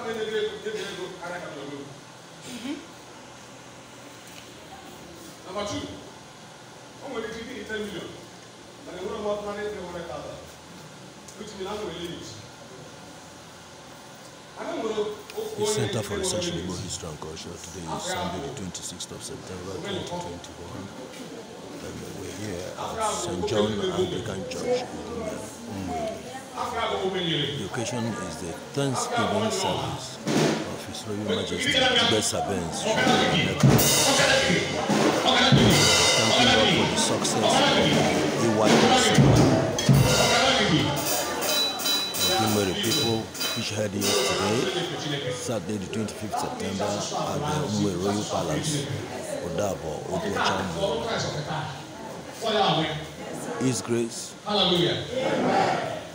we The Center for Research in Igbo History and Culture today is Sunday, the 26th of September 2021. And we're here at St. John Anglican Church in Umwe. The occasion is the Thanksgiving service of His Royal Majesty Bessabens. Thank you all for the success of the AYS. The people which had it today, Saturday the 25th September at the Uwe Royal Palace, Odabo, Otuachambo. His Grace. Hallelujah.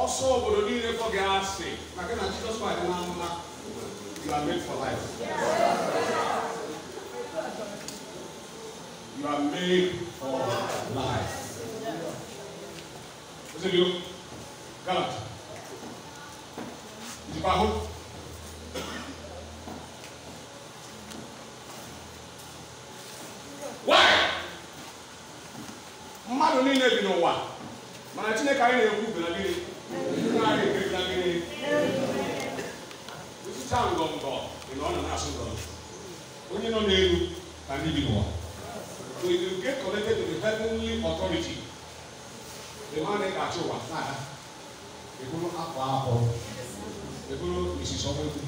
Also, obodo niile fọ gị asị maka na Jizọs Kraịst na amụma you are made for life you are made for life ozebio galat ijikwa ahụ asị nọ onye nọ n'elu na ndị bi n'ụwa so if you to the heavenly authority the man ị ga-achị ụwa na ha akwa ahụ eburu misisi ọkụ egwu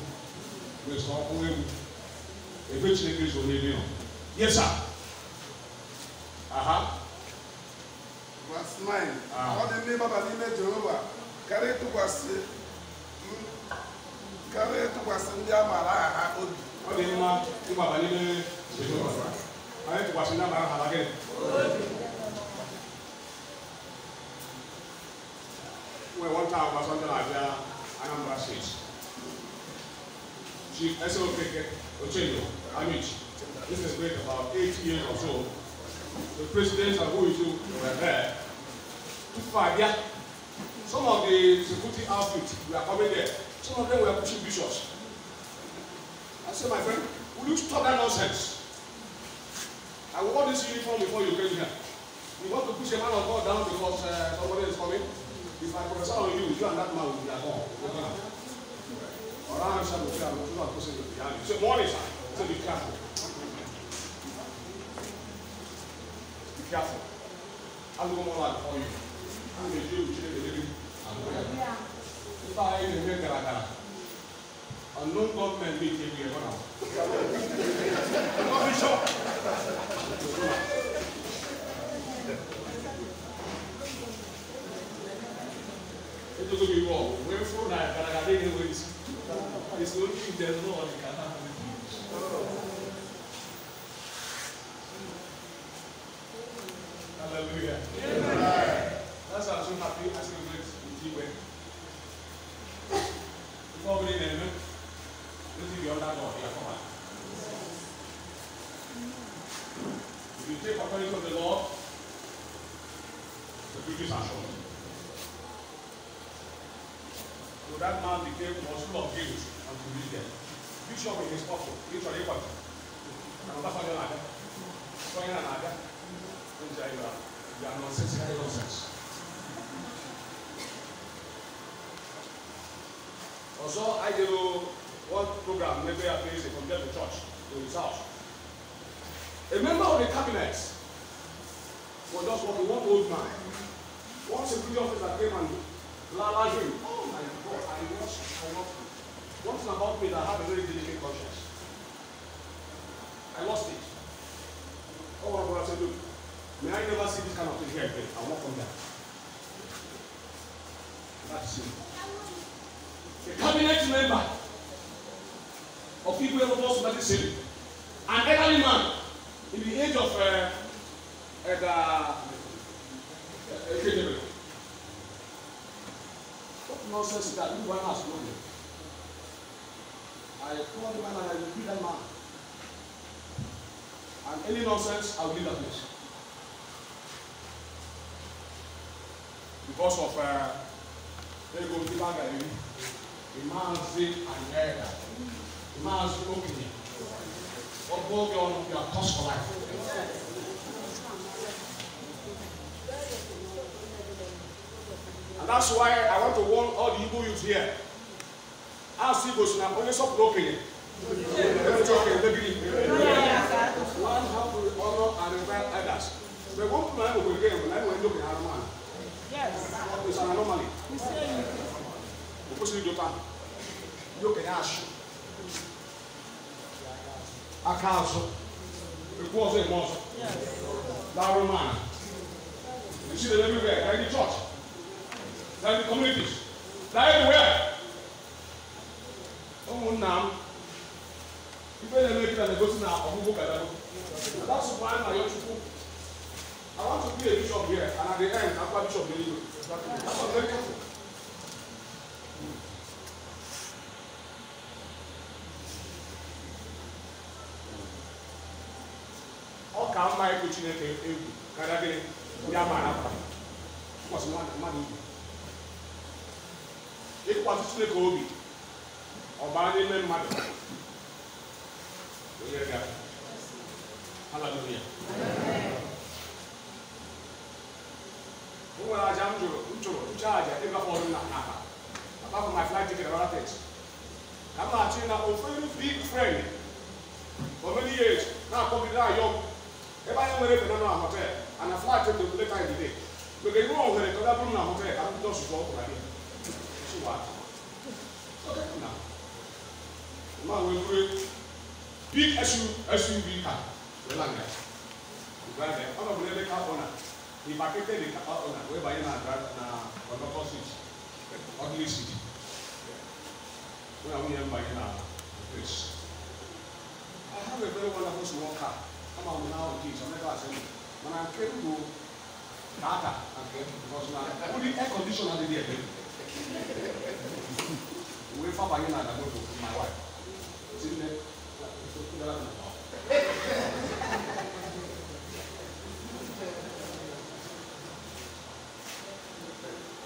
wesi ọkụ egwu ebe chineke zo n'ebe nọ yes aha verse 9 ọ dị ndị baba n'ime jehova karịa ịtụkwasị ka wee tụkwasị ndị a maara aha obi ọ dị mma ịgbaba n'ime anyị tụkwasị ndị a aha gịnị nwee nwata agwa sọnde na-abịa Anambra steeti Chief Ese Okeke Ochenyo Amichi this is great about eight years or so the president and who is you were there too far yeah some of the security outfits were coming there Some of them were pushing bishops. I said, my friend, will you stop that nonsense? I wore this uniform before you came here. You want to push a man of God down because uh, somebody is coming? If I prophesy on you, you and that man will be at all. Or I'm shall be careful. You are pushing behind you. So, morning, sir. So be careful. Be careful. I'll go more like for you. I'm a Jew, I'm a Jew. If I had a Karakara, a non government meeting here for now. Coffee shop. It will be wrong. We're for that, but I think it is. It's only if there's no one can happen. Hallelujah. If you take according to the law, the British are shown. So that man became was full of guilt and to lead them. Bishop in his pocket, each on equal. Another father another? that. Father like that. Don't tell you that. are nonsensical nonsense. Also, I do one program, maybe I place it from the church to his house. A member of the cabinet was just walking, one old man. One security officer came and lalaged him. Oh my God, I was corrupted. One thing about me that I have a very delicate conscience. I lost it. Oh, my brother said, look, may I never see this kind of thing here again. I won't come that. That's it. A cabinet member of people who have lost that is saving. nonsense, I will leave that place. Because of uh, very good people are the Imazi Anera, Imazi Okini. What will be on your cost for life? And that's why I want to warn all the evil youth here. As Igbo, you can only stop broken? Let me talk, let me that one how to honor and revive others. The one do I do again when I look at one? Yes. It's an anomaly. We say you. Because you do that. You can ask. Akaso. It was a monster. Yes. Larry man. You see them everywhere. They're in the church. They're in the communities. They're everywhere. Oh, now ife na-eme gị na na na ọgwụgwụ ka dago that's why na your chukwu i want to be a bishop here and at the end akwa bishop n'elu that's why very careful ọ ka mma ịkụ chineke egwu karịa gịnị ndị a maara akwa ịkwasị mmadụ igwe ịkwasị chineke obi ọ baa n'ime mmadụ We I'm very big For many years, now come with that young. If I am ready for another and a flight ticket the day. Because you know, when I come up not sure I mean. So what? Okay, now. Now we'll big SUV car welanga uganda ọnọdụ ebe car owner he vacated the car owner wee banye na drive na conductor seat ordinary seat wee nwunye m banye na place I have a very wonderful small car ama m na ahụ kids ọmeka asem mana When I came to na nke m because na only air condition adịghị ebe wee fa banye na adamoto my wife tinne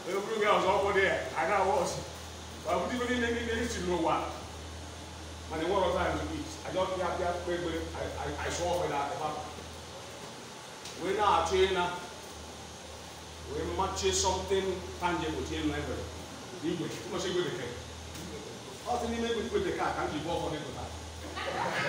ewúro gẹ ọsọ ọkọ díẹ̀ you wọọsì wàbùdí mi the ní ní ti lò wá mà ní wọlọ táyà but I, kíákíá pépé àìsọ ọfẹ náà ẹfà wèé náà àti ẹnà We má tse something tangible tí ẹnu ẹgbẹrẹ ní ìgbẹ tí mo ṣe gbẹdẹkẹ ọtí ní Can gbẹdẹkẹ àkàndì ìbọn ọkọ ní that?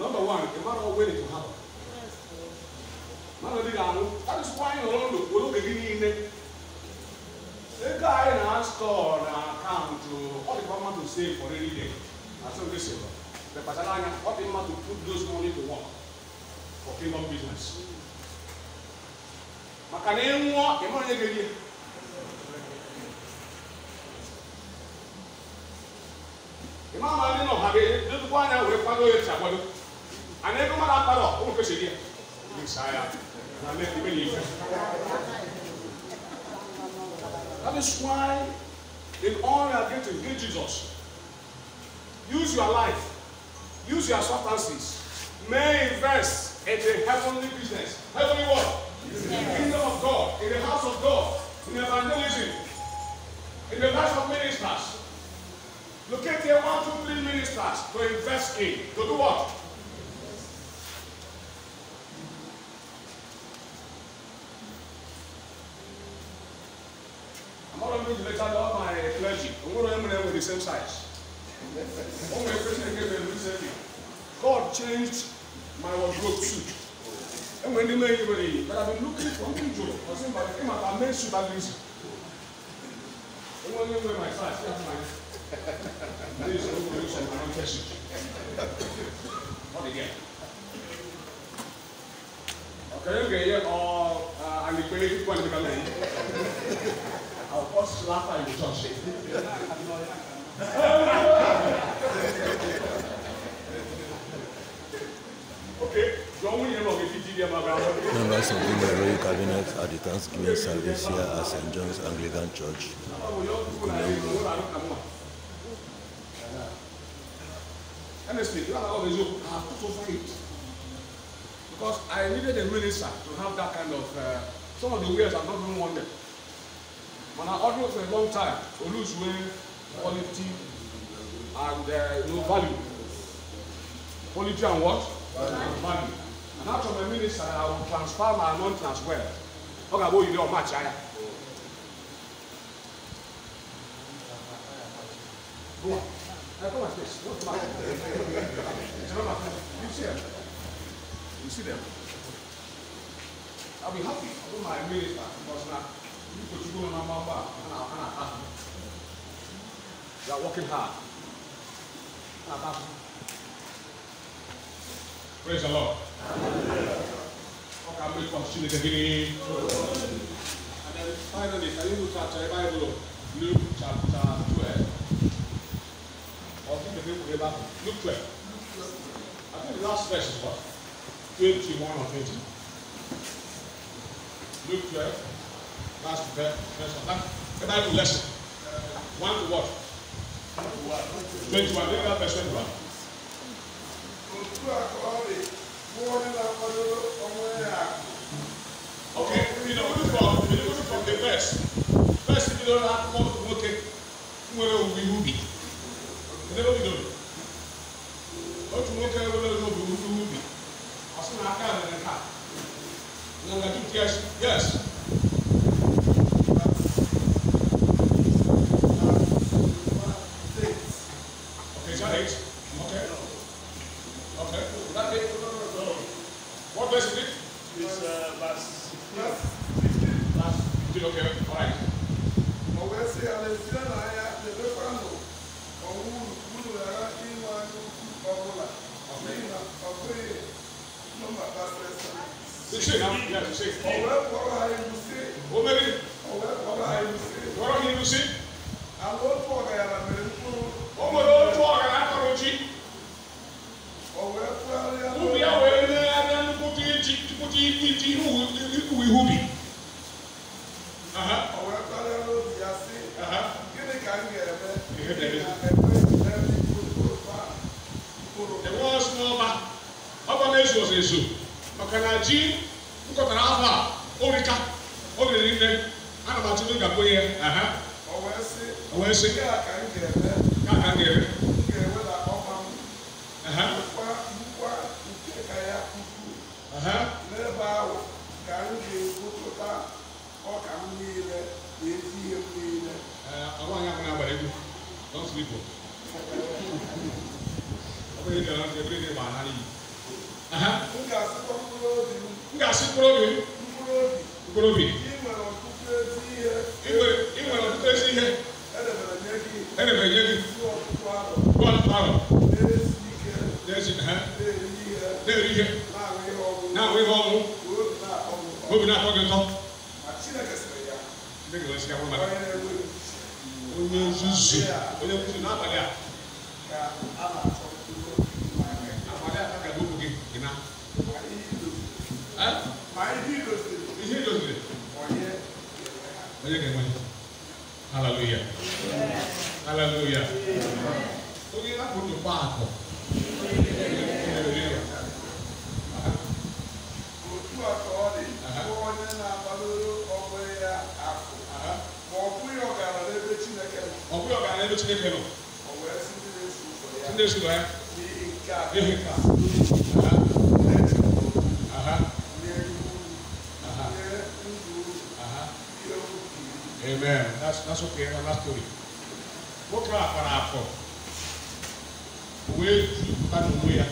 Number one, the man will willing to happen. Man will be That is why you don't look. begin in The guy in our store na come to all the government to save for any day. That's what we say. The Patalanga, what the man to put those money to work for kingdom business. maka na ịnwụọ ịmụ onye ga-erie ịma ama ndị nọ ha ga-edozikwa anya ana ebe mmadụ akpara ụmụ nke chiri ya saa ya na mmemme na ife That is why in all you are getting, get Jesus. Use your life. Use your substances. May invest in the heavenly business. same size. my came in recently, God changed my wardrobe suit. And when you made anybody, but I've been looking for new job. I was saying, but I came made suit that reason. They wear my size, that's my. This is the reason my own person. Not again. Okay, okay, or uh, uh, I'm going to I'll first laugh at you, Josh. Members of the Royal Cabinet at the Thanksgiving service here at St. John's Anglican Church, Honestly, you have to have put over it. Because I needed a minister to have that kind of, uh, some of the ways I've not even wanted. When I ordered for a long time, Olu's way, quality, and uh, you know, value. Quality and what? Value. value. And after my minister, I will transfer my anointing as well. Okay, about you don't match, I. Go on. Come like this. What's my You see them? You see them? I'll be happy I'll do my minister because now you put you on my back. and I'll, and They are working hard. Praise the Lord. How can we continue the beginning. And then finally, can you look at your Bible? Luke chapter 12. Or think the people Bible. Luke 12. I think the last verse is what? 21 or 20. Luke 12. Last verse. That, the Bible lesson. One to what? 21, look at verse 21. Okay, you know, look from, you look from the verse. First, if you don't have more to work, where will we be? Never be done. What to work, we be? As soon yes. ubi awo ɛna kuti ti kuti ti ti ihu ihu ihu bi. ọwọ ẹgbẹ alẹ ló di ase gịnị ka m ga-eme enwe ọsụ n'ọba ọba na-ezu ọzọ ezu maka na ji nkọtara afọ a orika o riri nne ana m atụ n'oge akpọ ihe wee sị ka ka m ga-eme n'ebe ahụ ka m ga-egwupụta ọka m niile na ezi ihe m niile m ga-asịkwa mkpụrụ obi m mkpụrụ obi mkpụrụ obi ị nwere ọtụtụ ezi ihe ị nwere ọtụtụ ezi ihe edebere nye gị edebere nye gị ọtụtụ arọ n'ezi ike na-eri ihe na-atọ gị ụtọ onye nzuzu onye nzuzu n'abalị a abalị a ka bụ gị gị na ihe idoziri onye ga-enwe haleluya haleluya onye hapụ ndụ gba akụ ego Chineke nọ Chineke sụrụ ya ihe nka Amen. That's that's okay. That's that story. Nwoke a kpara afọ wee ju mmadụ onwe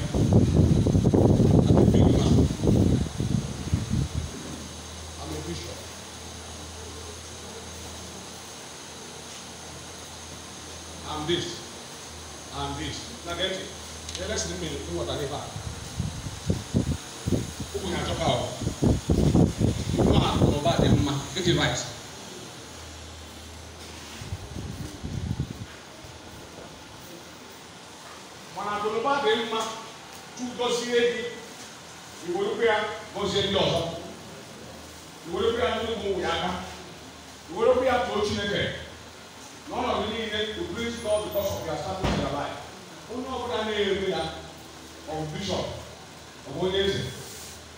of bishop, of onyeeze,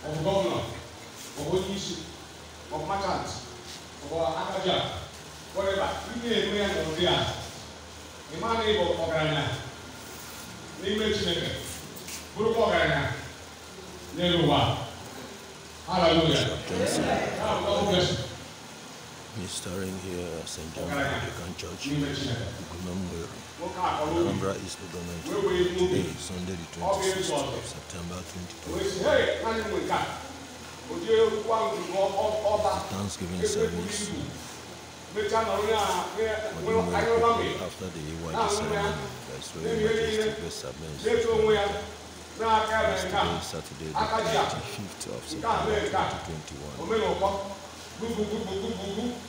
of governor, of onyeisi, of merchant, of akaja, whatever. Ị na-enwe ya n'ụdị a. Ị ma na ịbụ ọgaranya n'ime Chineke, bụrụkwa ọgaranya n'elu ụwa. Hallelujah. Restoring here St. John Anglican Church, Anambra is government. Today, Sunday, the 26th of September 2020. Thanksgiving service. After the AYD ceremony, that's where we will submit. Uh, yesterday, Saturday, the 25th of September 2021.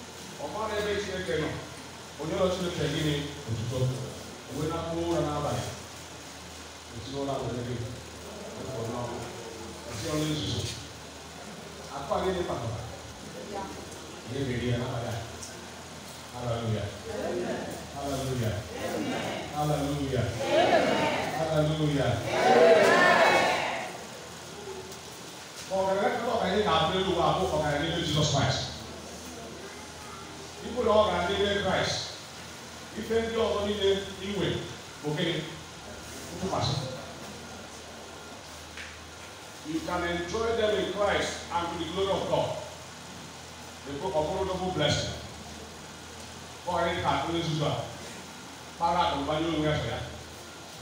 ọmọ wee na mkpụrụ ụra n'abalị esi ụra berede ụkọ n'ọkụ esi ọrụ nzuzo akpa gị dị kpatara ihe ga-eri ya n'abalị haleluya haleluya haleluya haleluya ọgaranya kata ọgaranya na-abụ elu ụwa abụ ọgaranya n'ime Jizọs Kraịst ikwu na ọ ga-adị n'ime Kraịst ife ndị ọzọ niile inwe bụ gịnị ntụkwasị you can enjoy them in Christ and to the glory of God the book of honorable blessing kọrị ka onye nzuzu a kpara akụnụbanye onwe ya sọ ya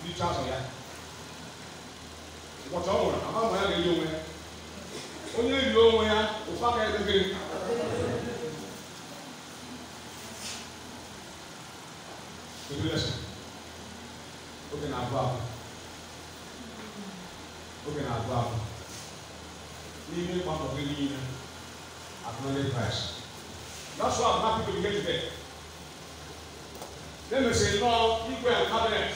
richa sọ ya ụbọchị ọ nwụrụ ama ma ya ga-eri onwe ya onye riri onwe ya ụfa ka ya gịnị tribulation oge na-abụ abụ oge na-abụ abụ n'ime mgbakọ gị niile acknowledge Christ that's why I'm happy to be here today na-emesịrị nnọọ igwe cabinet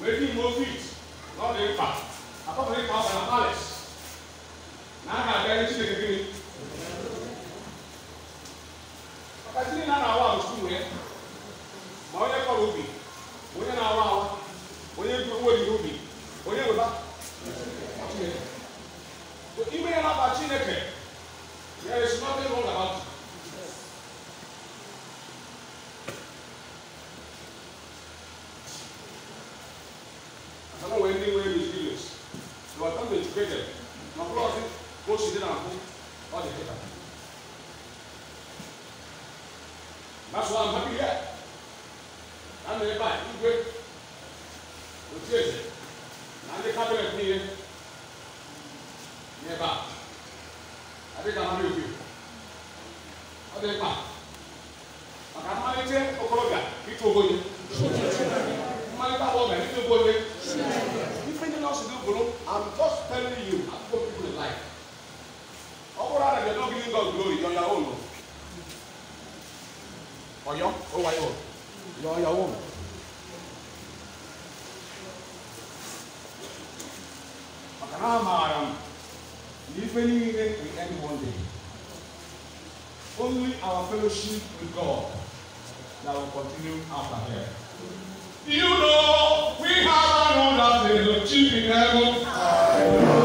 wee dị mgbe ofit n'ọdụ mkpa akpọpụrụ ịkpa ọbara palace na a ga-abịa Chineke gịnị maka Chineke na kama we ndị nwere experience. They were come educated. Na mkpụrụ ọsị ka Jag, jag om. Makanamaram. If we leave it, we end one day. Only our fellowship with God that will continue after here. You know, we have another day of chief in heaven.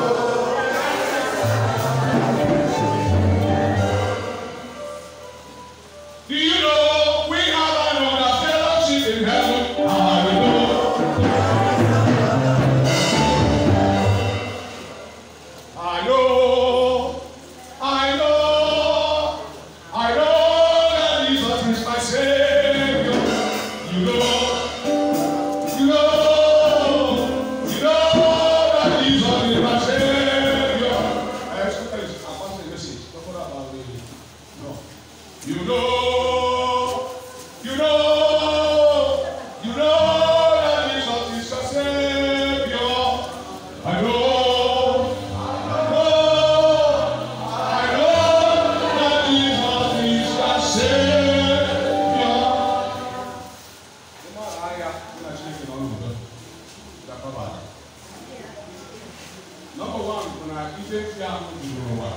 akisɛsi a mo duro wa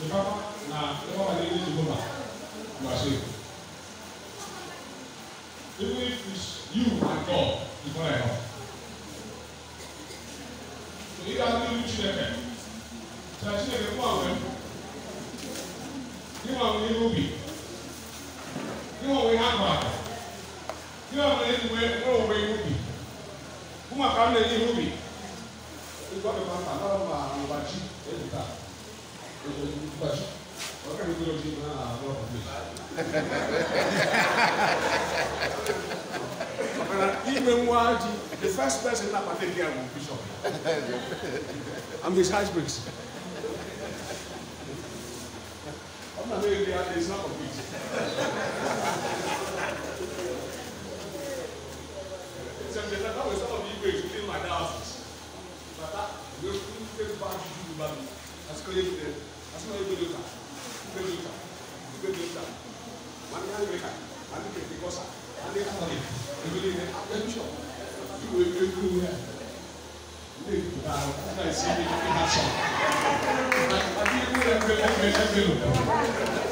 nipa na nipa wa ne ne ma wa se even if it's you and God before I know so if I do you chineke so I chineke fún àwọn ẹnu níwọ̀n àwọn ẹnu bi níwọ̀n àwọn ẹnu àgbà níwọ̀n àwọn ẹnu wẹ̀ wọ́n wọ̀ ẹnu bi fún àkàrà ẹnu bi ikọ̀ mi máa tàn náà máa wà tá? èyí ta èyí tó ti gbà jù ọ̀gá nova. ló ti máa de rọ̀ mi. Ime nwa ji, the first person na pàtẹ́ di àwọn bishop. I'm his husband. Ọ̀nà mi rí adé is not a Sẹ̀mìtẹ̀ náà wẹ̀ sọ́ọ̀ bí ìgbésù pé bá a dúdú bá mi àsìkò yẹ kúrẹ́ àsìkò yẹ kúrẹ́ ta kúrẹ́ mi ta kúrẹ́ mi ta wà ní àyè ká wà ní kẹ̀kẹ́ kọ́sà wà ní àkọlẹ̀ ìwé ní attention ìwé ìwé kúrú rẹ̀ ní ìgbà ọ̀tá ìsinmi ní ìhà sọ̀rọ̀ àti ìwé ẹgbẹ́ ẹgbẹ́ ẹgbẹ́ lò.